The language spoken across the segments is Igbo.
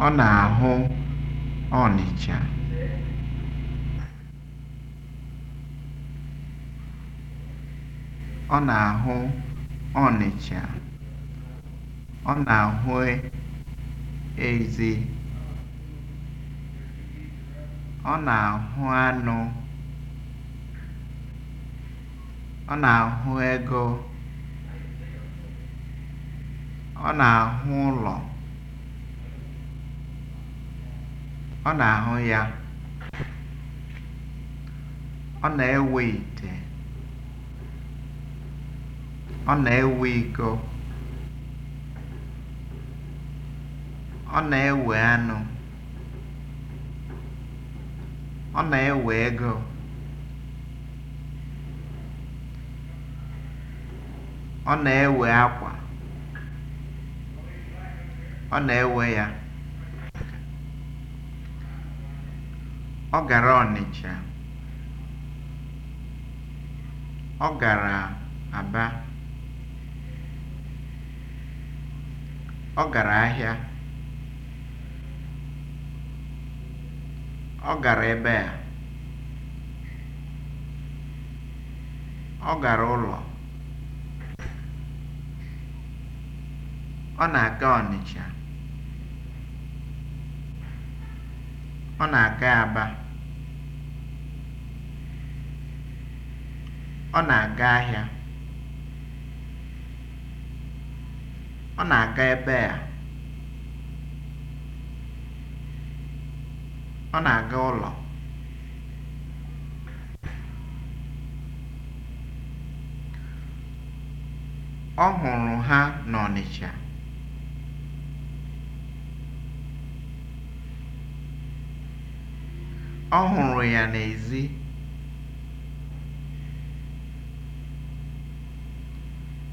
Ọ na-ahụ Ọnịcha. Ọ na-ahụ ezi. Ọ na-ahụ anụ. Ọ na-ahụ ego. Ọ na-ahụ ụlọ. Ọ na-ahụ ya, ọ na-ewe ite, ọ na-ewe iko, ọ na-ewe anụ, ọ na-ewe ego, ọ na-ewe akwa, ọ na-ewe ya. Ọ gara Ọnịcha. Ọ gara Aba. Ọ gara ahịa. Ọ gara ebe a. Ọ gara ụlọ. Ọ na-aga Ọnịcha. Ọ na-aga Aba. Ọ na-aga ahịa. Ọ na-aga ebe a. Ọ na-aga ụlọ. Ọ hụrụ ha n'Ọnịcha. Ọ hụrụ ya n'èzí.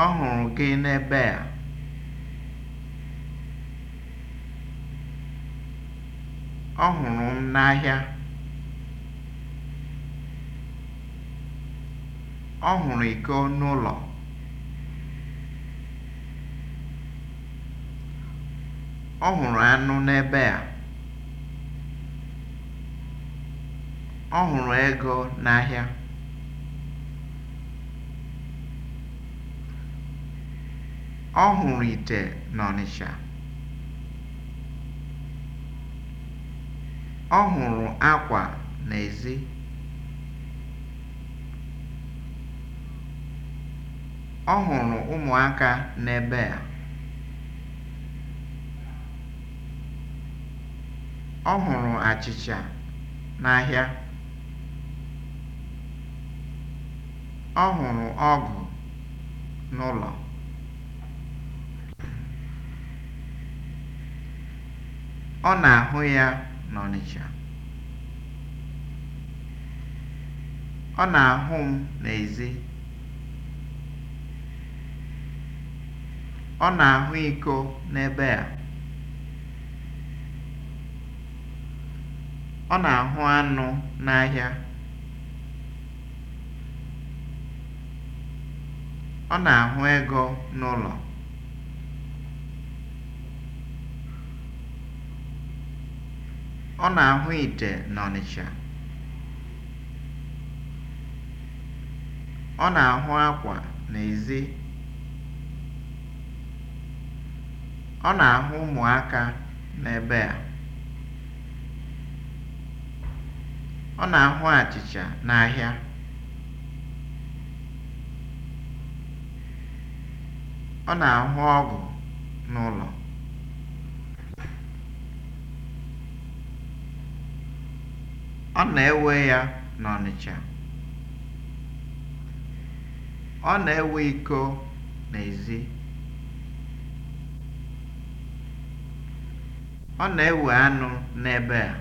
Ọ hụrụ gị n'ebe a. Ọ hụrụ m n'ahịa. Ọ hụrụ iko n'ụlọ. Ọ hụrụ anụ n'ebe a. Ọ hụrụ ego n'ahịa. Ọ hụrụ ite n'Ọnịsha, Ọ hụrụ akwa n'ezi. Ọ hụrụ ụmụaka n'ebe a. Ọ hụrụ achịcha n'ahịa. Ọ hụrụ ọgụ n'ụlọ. Ọ na-ahụ ya n'Ọnịcha. Ọ na-ahụ m n'ezi. Ọ na-ahụ iko n'ebe a. Ọ na-ahụ anụ n'ahịa. Ọ na-ahụ ego n'ụlọ. Ọ na-ahụ ite n'Ọnịcha. Ọ na-ahụ akwa n'ezi. Ọ na-ahụ ụmụaka n'ebe a. Ọ na-ahụ achịcha n'ahịa. Ọ na-ahụ ọgụ n'ụlọ. Ọ na-ewe ya n'Ọnịcha. Ọ na-ewe iko n'ezi. Ọ na-ewe anụ n'ebe a.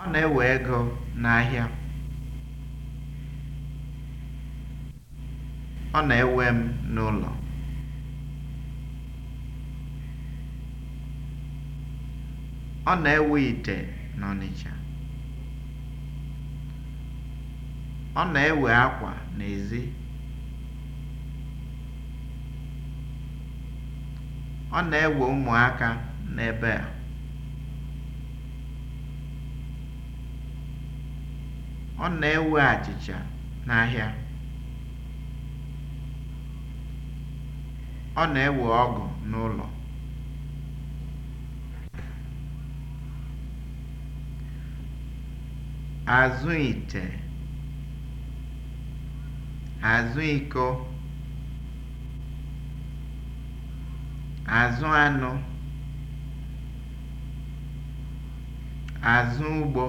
Ọ na-ewe ego n'ahịa. Ọ na-ewe m n'ụlọ. Ọ na-ewe ite n'Ọnịcha. Ọ na-ewe akwa n'ezi. Ọ na-ewe ụmụaka n'ebe a. Ọ na-ewe achịcha n'ahịa. Ọ na-ewe ọgụ n'ụlọ. azụ ite azụ iko azụ anụ azụ ugbo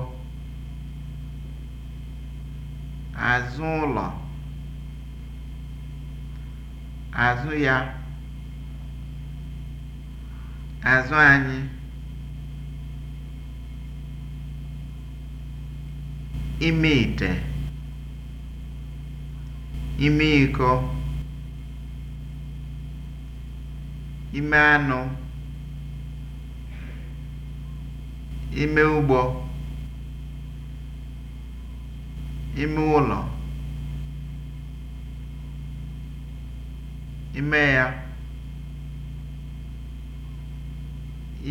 azụ ụlọ azụ ya azụ anyị ime ite ime ịkọ ime anụ ime ụgbọ ime ụlọ ime ya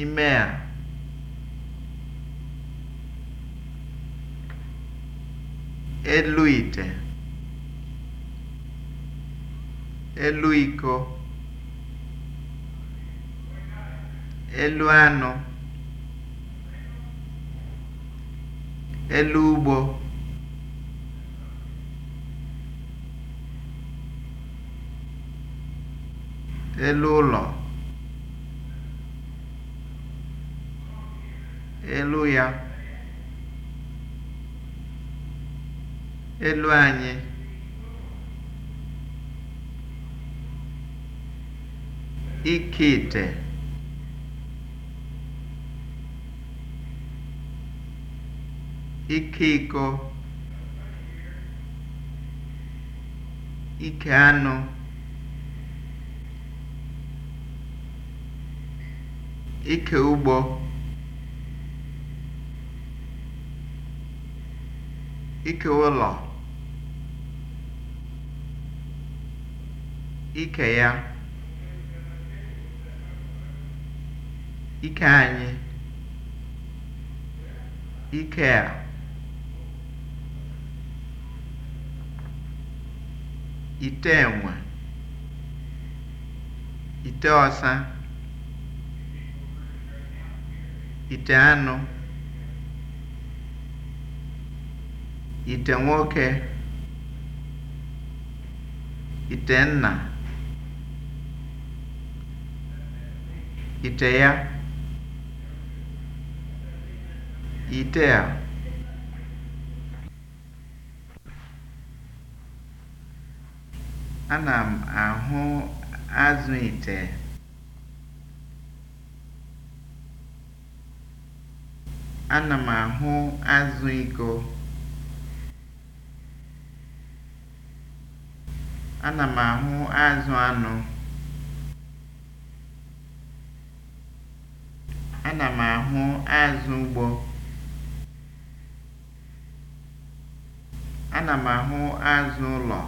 ime a elu ite elu iko elu anụ elu ugbo elu ụlọ elu ya elu anyị ike ite ike iko ike anụ ike ụgbọ ike ụlọ ike ya ike anyị ike a ite enwe ite ọsa ite anụ ite nwoke ite nna ite ya ite a ana m ahụ azụ ite ana m ahụ azụ iko ana m ahụ azụ anụ Ana m ahụ azụ Ana azụ ụlọ.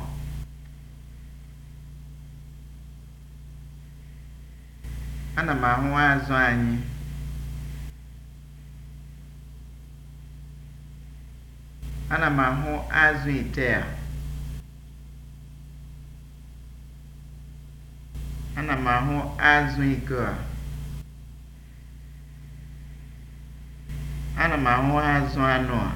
Ana m ahụ azụ anyị. Ana m ahụ azụ ite a. Ana m ahụ azụ iko a. Ana m ahụ azụ anụ a.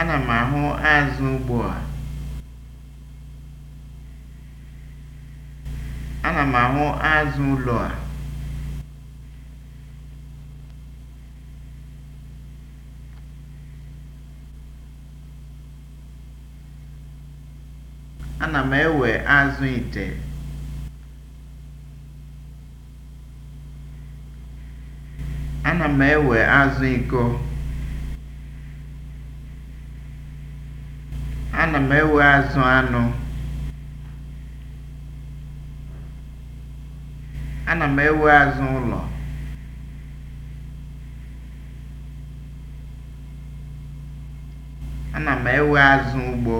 Ana m ahụ azụ ugbu a. Ana m ahụ azụ ụlọ a. Ana m ewe azụ ite. Ana m ewe azụ iko. Ana m ewe azụ anụ. Ana m ewe azụ ụlọ. Ana m ewe azụ ugbo.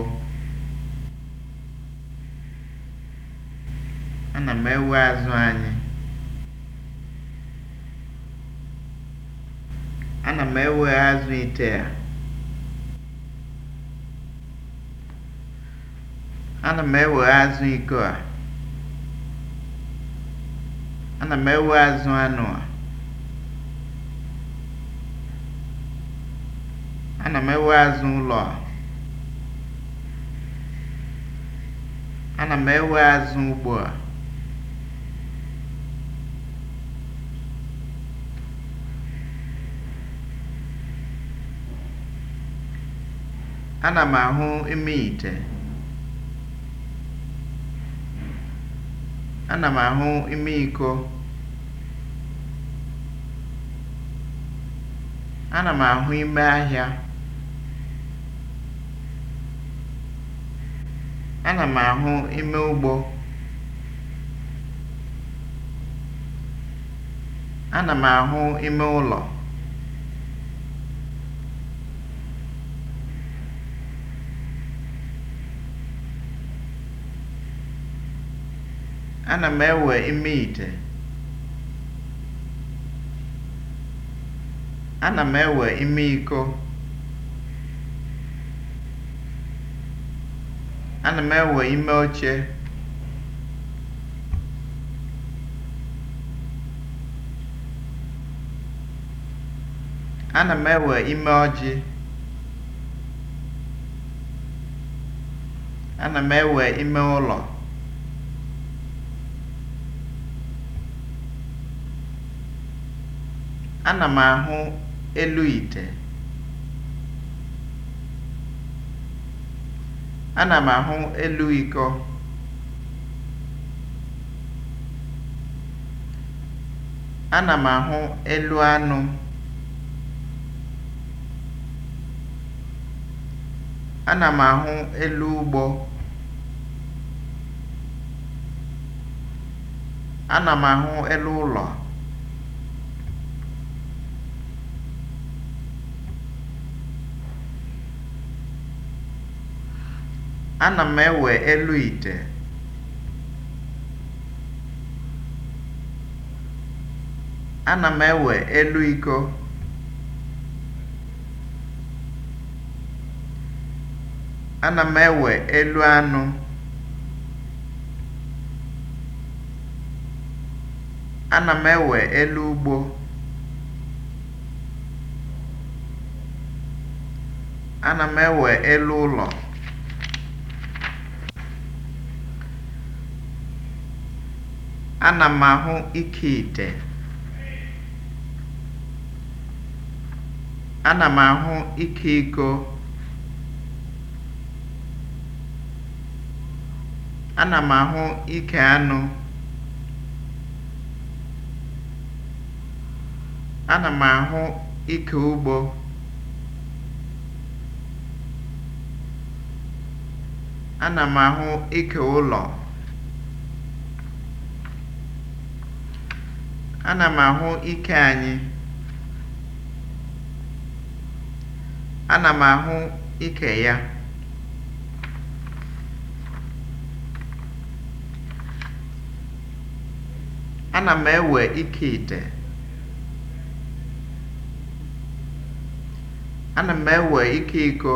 Ana m ewe azụ anyị. ana m ewe azụ ite a ana m ewe azụ iko a ana m ewe azụ anụ a ana m ewe azụ ụlọ a ana m ewe azụ ugbo a Ana m ahụ ime ite. Ana m ahụ ime iko. Ana m ahụ ime ahịa. Ana m ahụ ime ugbo. Ana m ahụ ime ụlọ. ana m ewe ime ite ana m ewe ime iko ana m ewe ime oche ana m ewe ime ọjị ana m ewe ime ụlọ Ana m ahụ elu ite. Ana m ahụ elu ịkọ. Ana m ahụ elu anụ. Ana m ahụ elu ụgbọ. Ana m ahụ elu ụlọ. Ana m ewe elu ite. Ana m ewe elu iko. Ana m ewe elu anụ. Ana m ewe elu ugbo. Ana m ewe elu ụlọ. Ana m ahụ ike ite. Ana m ahụ ike iko. Ana m ahụ ike anụ. Ana m ahụ ike ugbo. Ana m ahụ ike ụlọ. Ana m ahụ ike anyị. Ana m ahụ ike ya. Ana m ewe ike ite. Ana m ewe ike iko.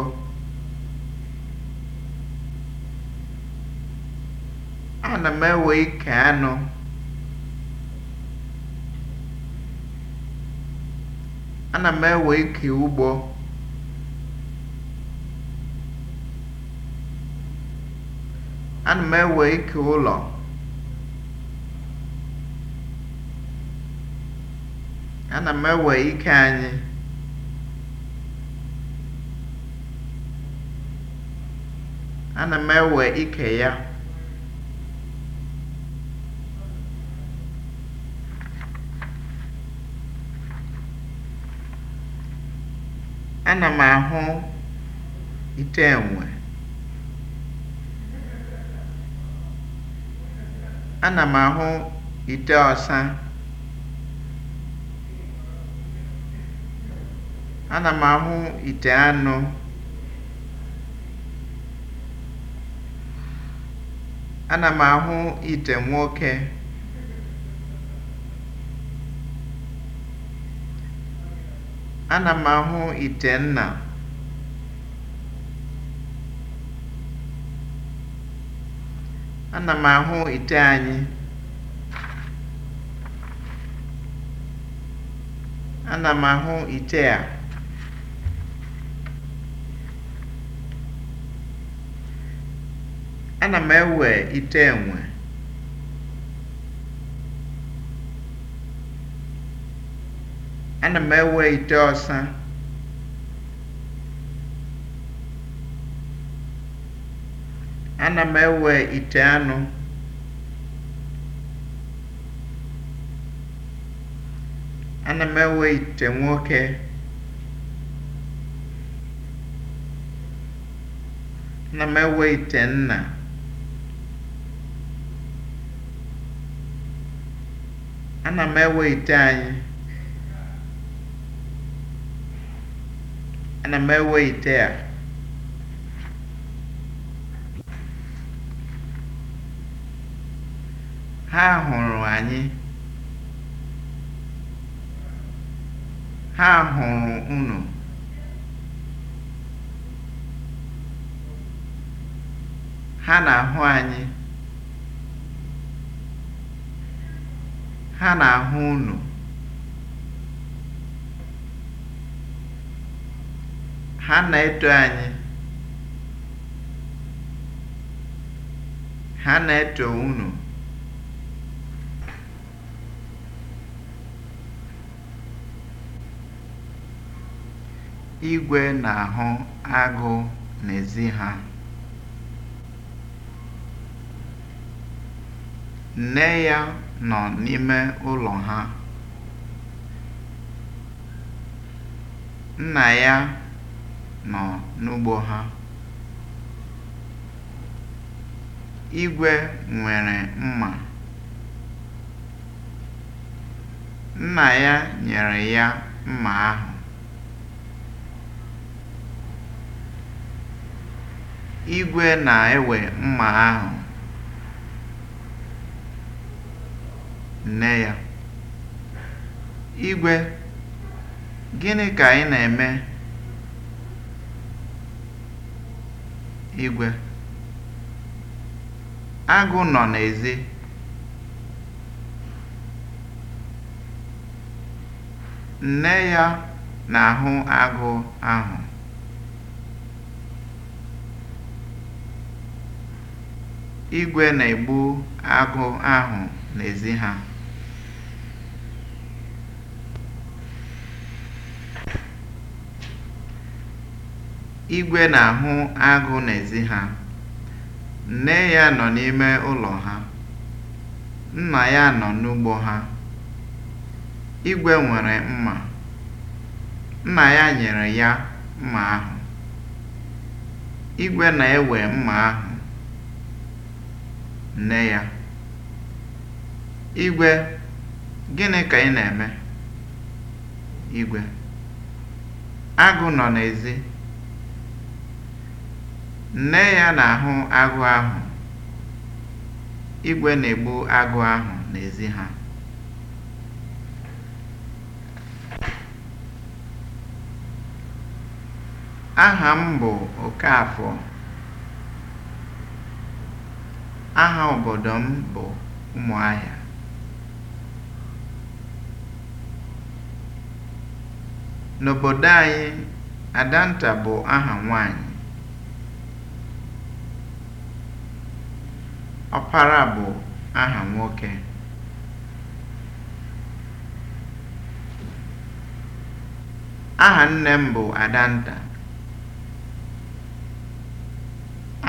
Ana m ewe ike anụ. Ana m ewe ike ụgbọ Ana m ewe ike ụlọ Ana m ewe ike anyị Ana m ewe ike ya Ana m ahụ ite enwe. Ana m ahụ ite ọsa. Ana m ahụ ite anụ. Ana m ahụ ite nwoke. Ana m ahụ nna. Ana m ahụ ite anyị. Ana m ahụ ite a. Ana m ewe ite enwe. ana m ewe ite ọsa ana m ewe ite anụ ana m ewe ite nwoke ana m ewe ite nna ana m ewe ite anyị ana m ewe ite a ha hụrụ anyị ha hụrụ unu ha na-ahụ anyị ha na-ahụ unu ha na-eto anyị ha na-eto unu igwe na-ahụ agụ n'ezi ha nne ya nọ n'ime ụlọ ha nna ya nọ n'ugbo ha. Igwe nwere mma. Nna ya nyere ya mma ahụ. Igwe na-ewe mma ahụ. Nne ya: Igwe, gịnị ka ị na-eme? igwe. Agụ nọ n'ezi. Nne ya na-ahụ agụ ahụ. Igwe na-egbu agụ ahụ n'ezi ha. Igwe na-ahụ agụ n'ezi ha. Nne ya nọ n'ime ụlọ ha. Nna ya nọ n'ugbo ha. Igwe nwere mma. Nna ya nyere ya mma ahụ. Igwe na-ewe mma ahụ. Nne ya: Igwe, gịnị ka ị na-eme? Igwe: Agụ nọ n'ezi. Nne ya na-ahụ agụ ahụ. Igwe na-egbu agụ ahụ n'ezi ha. Aha m bụ Okafọ. Aha obodo m bụ Ụmụahịa. N'obodo anyị, Adanta bụ aha nwaanyị. Ọpara bụ aha nwoke. Aha nne m bụ Adanta.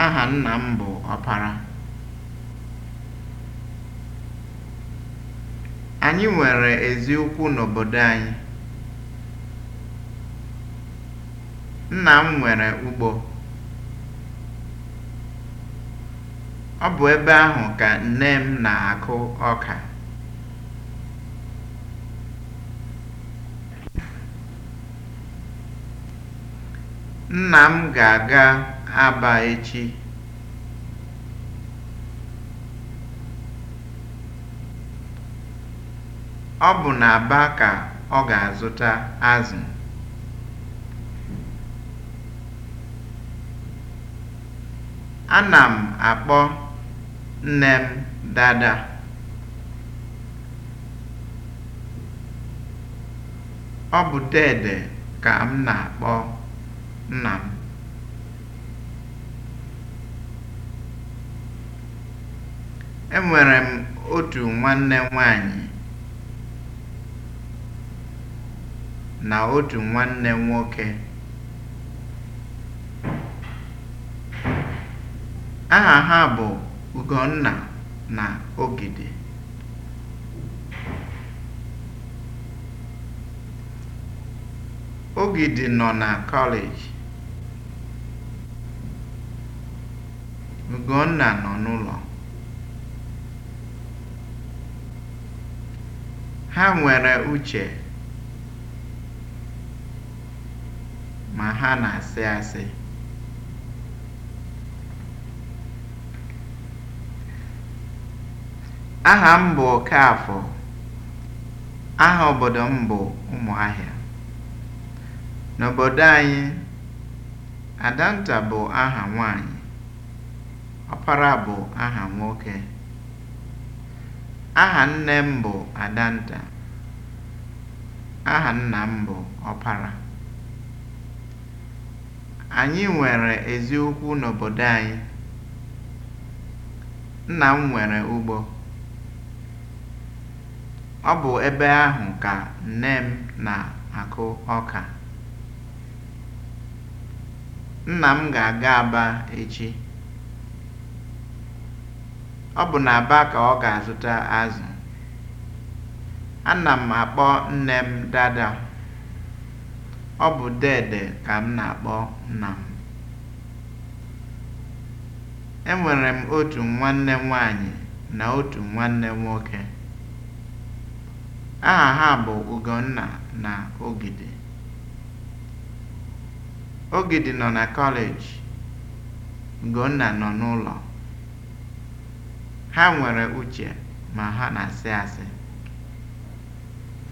Aha nna m bụ Ọpara. Anyị nwere eziokwu n'obodo anyị. Nna m nwere ugbo. Ọ bụ ebe ahụ ka nne m na-akụ ọka. Nna m ga-aga Aba echi. Ọ bụ n'Aba ka ọ ga-azụta azụ. Ana m akpọ nne m dada ọ bụ deede ka m na-akpọ nna m enwere m otu nwanne nwanyị na otu nwanne nwoke aha ha bụ Ugonna na Ogidi Ogidi nọ na kọleji. Ugonna nọ n'ụlọ. Ha nwere uche ma ha na-asị asị. Aha m bụ afọ Aha obodo m bụ Ụmụahịa. N'obodo anyị, Adanta bụ aha nwaanyị, Ọpara bụ aha nwoke. Aha nne m bụ Adanta. Aha nna m bụ Ọpara. Anyị nwere eziokwu n'obodo anyị. Nna m nwere ugbo. Ọ bụ ebe ahụ ka nne m na-akụ ọka. Nna m ga-aga Aba echi. Ọ bụ na aba ka ọ ga-azụta azụ. Ana m akpọ nne m Dada. Ọ bụ Dede ka m na-akpọ nna m. Enwere m otu nwanne nwaanyị na otu nwanne nwoke. Aha ha bụ Ugonna na Ogidi. Ogidi nọ na kọleji, Ugonna nọ n'ụlọ. Ha nwere uche ma ha na-asị asị.